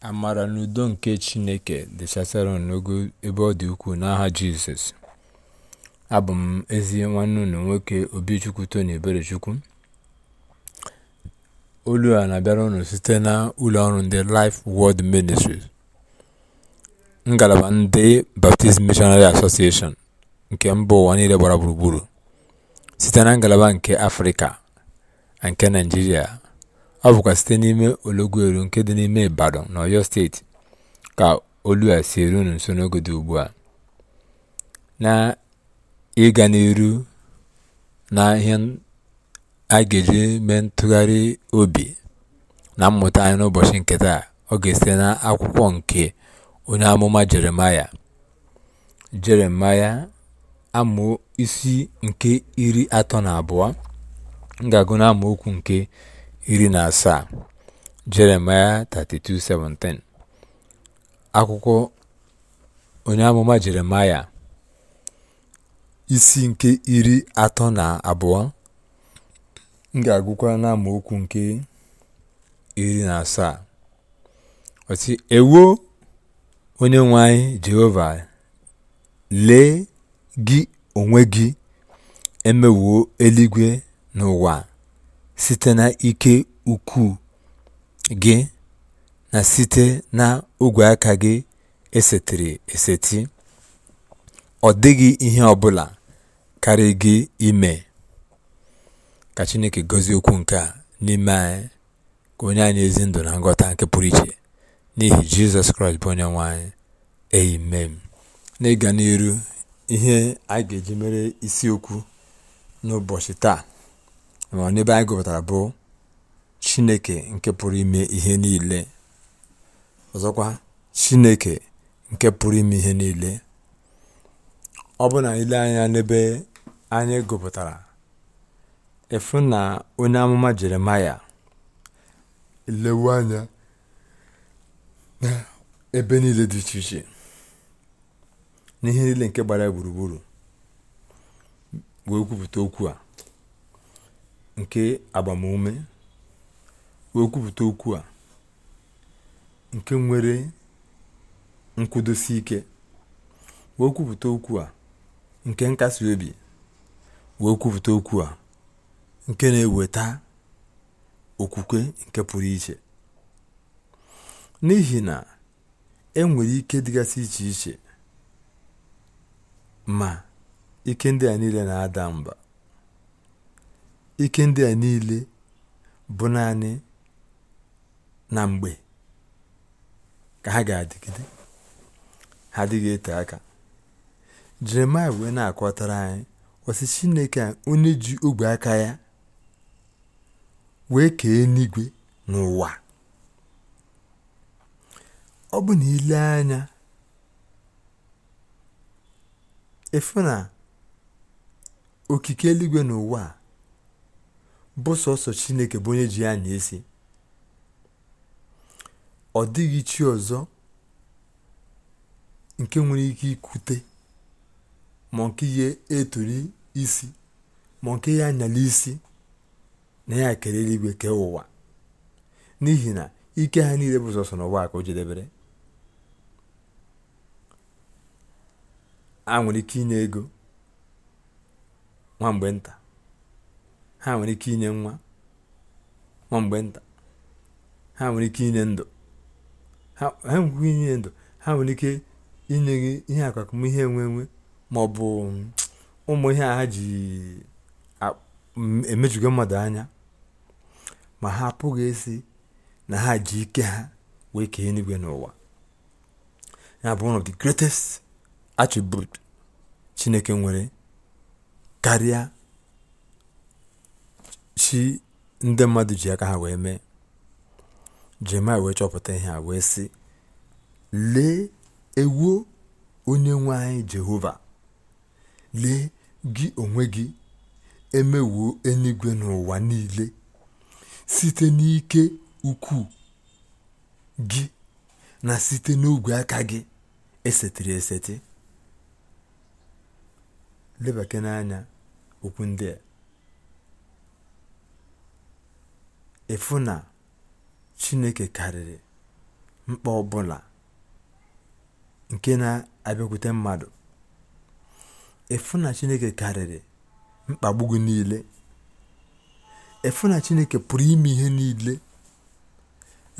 amara n'udo nke chineke dịchasịara unu n'ogo ebe ọ dị ukwuu n'aha jizọs abụ m ezi nwanne unu nwoke obichukwu tony eberechukwu olu a na-abịara unu site na ụlọ ọrụ ndị life world ministries ngalaba ndị baptist missionary association nke mba ụwa niile gbara gburugburu site na ngalaba nke afrịka na nke naijiria Ọ bụkwa site n'ime Olọgụrụ nke dị n'ime Ibadan na Ọyọ Steeti ka olu a si eru nso n'oge dị ugbu a. ịga n'ihu na ihe a ga-eji mee ntụgharị obi na mmụta anyị n'ụbọchị nke taa, ọ ga-esite n'akwụkwọ nke onye amụma Jeremaya. Jeremaya amaokwu isi nke iri atọ na abụọ. M ga-agụ amaokwu nke iri na asaa Jeremaya 32:17 akwụkwọ onye amụma Jeremaya isi nke iri atọ na abụọ m ga-agụkwa na nke iri na asaa ọtị ewo onye nwe anyị Jehova lee gị onwe gị emewuo eluigwe n'ụwa site na ike ukwuu gị na site na ogwe aka gị esetiri eseti, ọ dịghị ihe ọ bụla karị gị ime. Ka Chineke gozi okwu nke a n'ime anyị ka onye anyị ezi ndụ na nghọta nke pụrụ iche n'ihi Jizọs Kraịst bụ onye nwanyị anyị amen n'ịga n'elu ihe a ga-eji mere isiokwu n'ụbọchị taa ma n'ebe anyị gụpụtara bụ chineke nke pụrụ ime ihe niile ọzọkwa chineke nke pụrụ ime ihe niile ọ bụ na ile anya n'ebe anyị gụpụtara efu na onye amụma jeremaya lewe anya na ebe niile dị iche iche n'ihe niile nke gbara gburugburu wee kwupụta okwu a nke agbamume wee okwu a nke nwere nkwụdosi ike wee kwupụta okwu a nke nkasi obi wee kwupụta okwu a nke na-eweta okwukwe nke pụrụ iche n'ihi na e nwere ike dịgasị iche iche ma ike ndị a niile na-ada mba ike ndị a niile bụ naanị na mgbe ka ha ga-adịgide ha adịghị ete aka jeremaya wee na-akọtara anyị ọsị chineke onye ji ogwe aka ya wee kee eluigwe n'ụwa ọ bụ na ile anya efu na okike eluigwe n'ụwa a bụ chineke bụ onye ji ya anya isi ọ dịghị chi ọzọ nke nwere ike ikute ma nke ihe eturi isi ma nke ya anyala isi na ya kere eluigwe kee ụwa n'ihi na ike ha niile bụ sọsọ n'ụwa ka o jedebere a nwere ike inye ego nwa mgbe nta ha nwere ike inye nwa nwa mgbe nta ha nwere ike inye ndụ ha nwere ike inye ndụ ha nwere ike inye gị ihe akwakume ihe nwe ma ọ bụ mm, ụmụ ihe ha ji mm, emejugo mmadụ anya ma ha apụghị esi na ha ji ike ha wee kee eluigwe n'ụwa ya bụ one of the greatest attribute chineke nwere karịa chi ndị mmadụ ji aka ha wee mee jeremaya wee chọpụta ihe a wee sị lee ewuo onye nwe anyị jehova lee gị onwe gị emewuo enyigwe n'ụwa niile site n'ike ukwu gị na site n'ogwe aka gị esetiri eseti lebakena n'anya okwu ndị a ịfụ na chineke karịrị mkpa ọbụla nke na-abịakwute mmadụ ịfụ na chineke karịrị mkpagbu gị niile ịfụ na chineke pụrụ ime ihe niile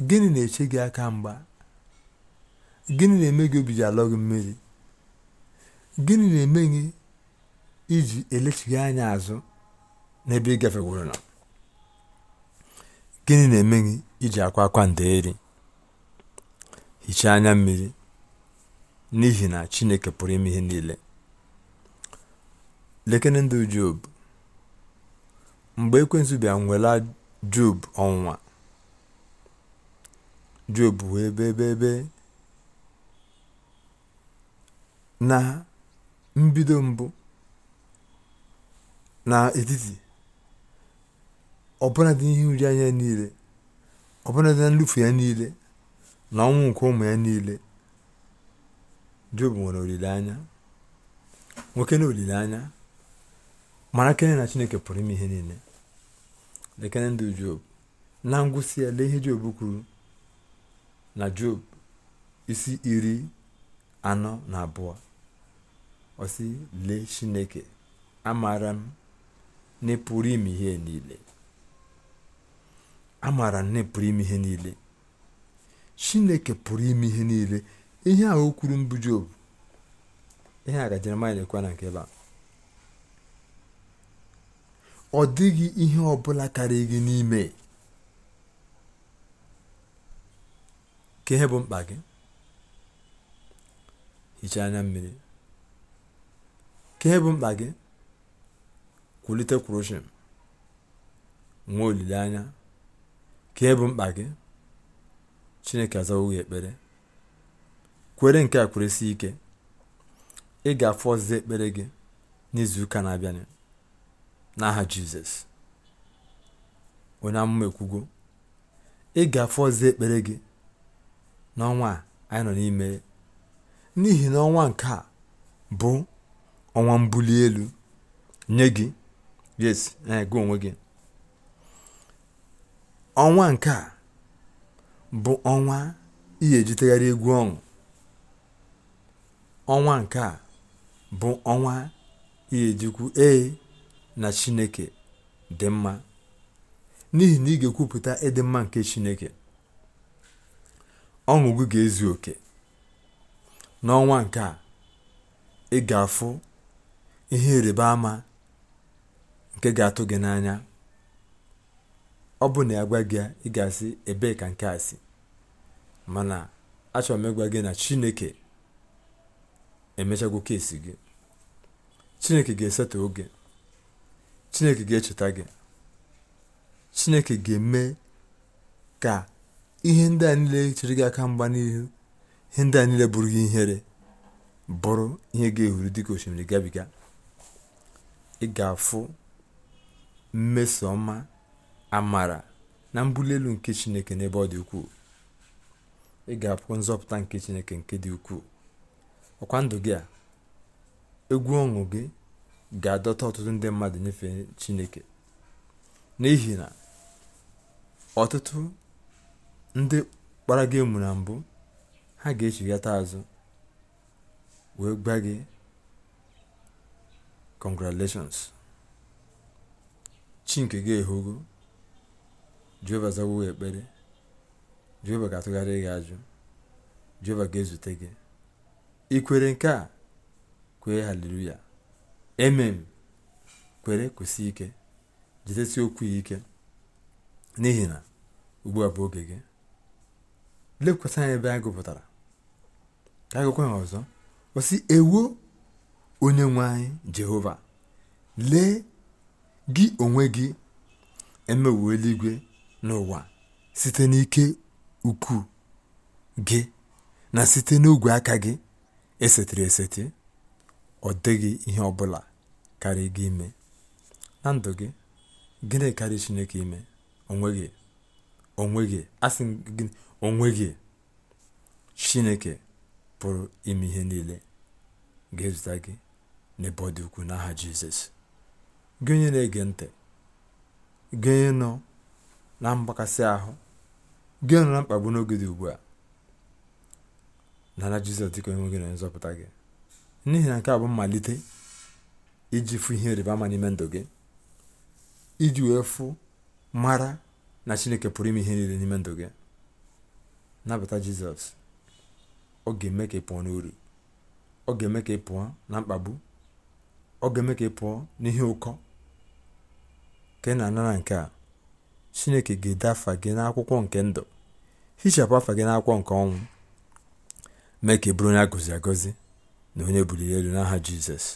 gịnị na-eche gị aka mgba gịnị na-eme gị obi ji alọ gị mmiri gịnị na-eme gị iji elechighị anya azụ n'ebe ị gafegwuru na. Gịnị na-eme gị iji akwa akwa ndeeri? Hichaa anya mmiri, n'ihi na Chineke pụrụ ime ihe niile. Lekene ndụ Job. Mgbe Ekwensu bịara nwela Job ọnwa Job wee ebe ebe na mbido mbụ na etiti ọbụnadị ihe uri anya niile ọbụnadị na nlufu ya niile na ọnwụ nke ụmụ ya niile jobu nwere olileanya nwoke na olileanya mara kene na chineke pụrụ ime ihe niile lekene ndụ job na ngwụsị ya lee ihe job kwuru na job isi iri anọ na abụọ osi lee chineke amaara m na ime ihe niile a nne pụrụ ime ihe niile chineke pụrụ ime ihe niile ihe a okwuru kwuru mbụ jobu ihe a ka jeremaya na nke ebe ọ dịghị ihe ọbụla karịa gị n'ime ka bụ mkpa gị hichaa anya mmiri ka ihe bụ mkpa gị kwulite kwurushin nwee olileanya ka bụ mkpa gị chineke azawo gị ekpere kwere nke a si ike ị ga-afụ ekpere gị n'izuụka na-abịanụ n'aha jizọs onye amụma ekwugo ị ga ekpere gị n'ọnwa a anyị nọ n'ime n'ihi na ọnwa nke a bụ ọnwa mbuli elu nye gị yes na onwe gị ọnwa nke a bụ ọnwa ihe jitaghara egwu ọṅụ ọnwa nke a bụ ọnwa ihe ee na chineke dị mma n'ihi na ị ga-ekwupụta ịdị e mma nke chineke ọṅụ gị ga-ezu oke n'ọnwa nke a ị ga-afụ ihe ịrịba ama nke ga-atụ gị n'anya ọ bụ na ya gwa gị asị ebee ka nke a si mana achọrọ m ịgwa gị na chineke emechagwo kesi gị chineke ga-esetụ oge chineke ga-echeta gị chineke ga-eme ka ihe ndị a niile chere gị aka mgba n'ihu ihe ndị a niile bụrụ gị ihere bụrụ ihe ga-ehuru dịka osimiri gabiga ị ga-afụ mmeso ọma amara na mbuli elu nke chineke n'ebe ọ dị ukwuu ị ga-apụ nzọpụta nke chineke nke dị ukwuu ọkwa ndụ gị a egwu ọṅụ gị ga-adọta ọtụtụ ndị mmadụ nyefe chineke n'ihi na ọtụtụ ndị kpara gị emu na mbụ ha ga-echighata azụ wee gba gị congratulations chi nke gị ehogo jeova zawo ekpere jeova ga-atụgharị gị ajụ jeova ga-ezute gị ikwere nke a kwee haleluya emem kwere kwụsị ike jidesi okwu ya ike n'ihi na ugbu a bụ oge gị lekwasị anya ebe a gụpụtara ka agụkwa ha ọzọ kwụsị ewo onye nwe anyị jehova lee gị onwe gị emewo eluigwe n'ụwa site n'ike ukwu gị na site n'ogwe aka gị esetere eseti ọ dịghị ihe ọ bụla karị gị ime na ndụ gị gịnị karị chineke ime onweghị onweghị asị gị onweghị chineke pụrụ ime ihe niile ga-ezute gị n'ebe ọ dị n'aha jizọs gị onye na-ege ntị gị onye nọ na mgbakasị ahụ gị nọ na mkpagbu n'oge dị ugbu a nara jizọs dịka onye nwe gị na nzọpụta gị n'ihi na nke a bụ mmalite iji fụ ihe ịrịba ama n'ime ndụ gị iji wee fụ mara na chineke pụrụ ime ihe niile n'ime ndụ gị nabata jizọs ọ ga-eme ka ị pụọ n'uru ọ ga-eme ka ị pụọ na mkpagbu ọ ga-eme ka ị pụọ n'ihe ụkọ ka ị na-ana na nke a chineke ga-ede afa gị n'akwụkwọ nke ndụ hichapụ afa gị n'akwụkwọ nke ọnwụ mee ka e bụrụ onye agọzi agọzi na onye buliri elu n'aha jizọs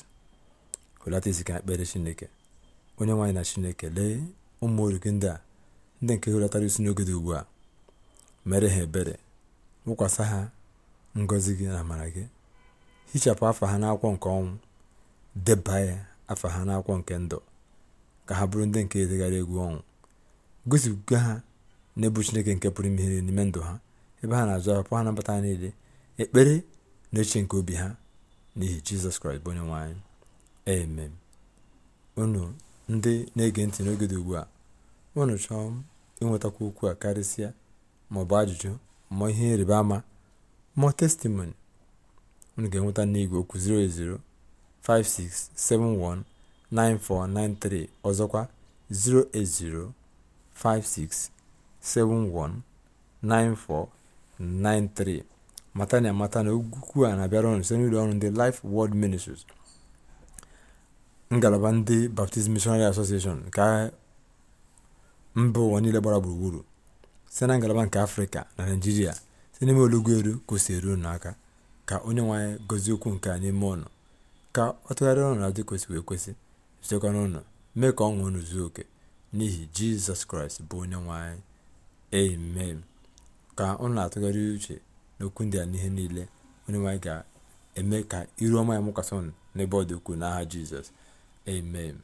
hụlata isi akpere ekpere chineke onye nwaanyị na chineke lee ụmụ orike ndị a ndị nke hụlatara isi n'oge dị ugbu a mere ha ebere wụkwasị ha ngọzi gị na amara gị hichapụ afa ha n'akwụkwọ nke ọnwụ deba ya afa ha n'akwụkwọ nke ndụ ka ha bụrụ ndị nke edegharị egwu ọnwụ gosipụga ha n'ebu chineke nke pụrụ ime ihe n'ime ndụ ha ebe ha na-azụ apụ ha nabata ha niile ekpere na eche nke obi ha n'ihi jizọs kraịst bụ onye nwanyị amen unu ndị na-ege ntị n'oge dị ugbu a unu chọọ ịnwetakwa okwu a karịsịa maọbụ ajụjụ ma ihe ịrịba ama ma testimoni unu ga-enweta n'igwe okwu 08056719493 ọzọkwa 080 56719493 mata na amata na okwu a na-abịara ọnụ site n'ụlọ ọrụ ndị Life world Ministries ngalaba ndị Baptist Missionary Association nke mba ụwa niile gbara gburugburu site na ngalaba nke Afrịka na Naịjirịa site n'ime olugbu eru kwụsị eru n'aka ka onye nwe anyị gozie okwu nke anyị n'ime ọnụ ka ọ tụgharịa ọnụ na dị kwesịrị ekwesị zitekwa ọnụ mee ka ọ ṅụọ unu zuo oke n'ihi jizọs kraịst bụ onye nwanyị anyị amen ka ọ na-atụgharị uche n'okwu ndị a n'ihe niile onye nwanyị ga-eme ka iru ọma ya mụkwasị ọnụ n'ebe ọ dị ukwuu n'aha jizọs amen